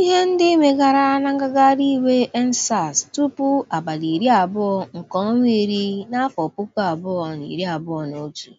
Ihe ndị megara na ngagharị iwe EndSARS tupu abalị iri abụọ nke ọnwa iri n'afọ puku abụọ na iri abụọ na otu.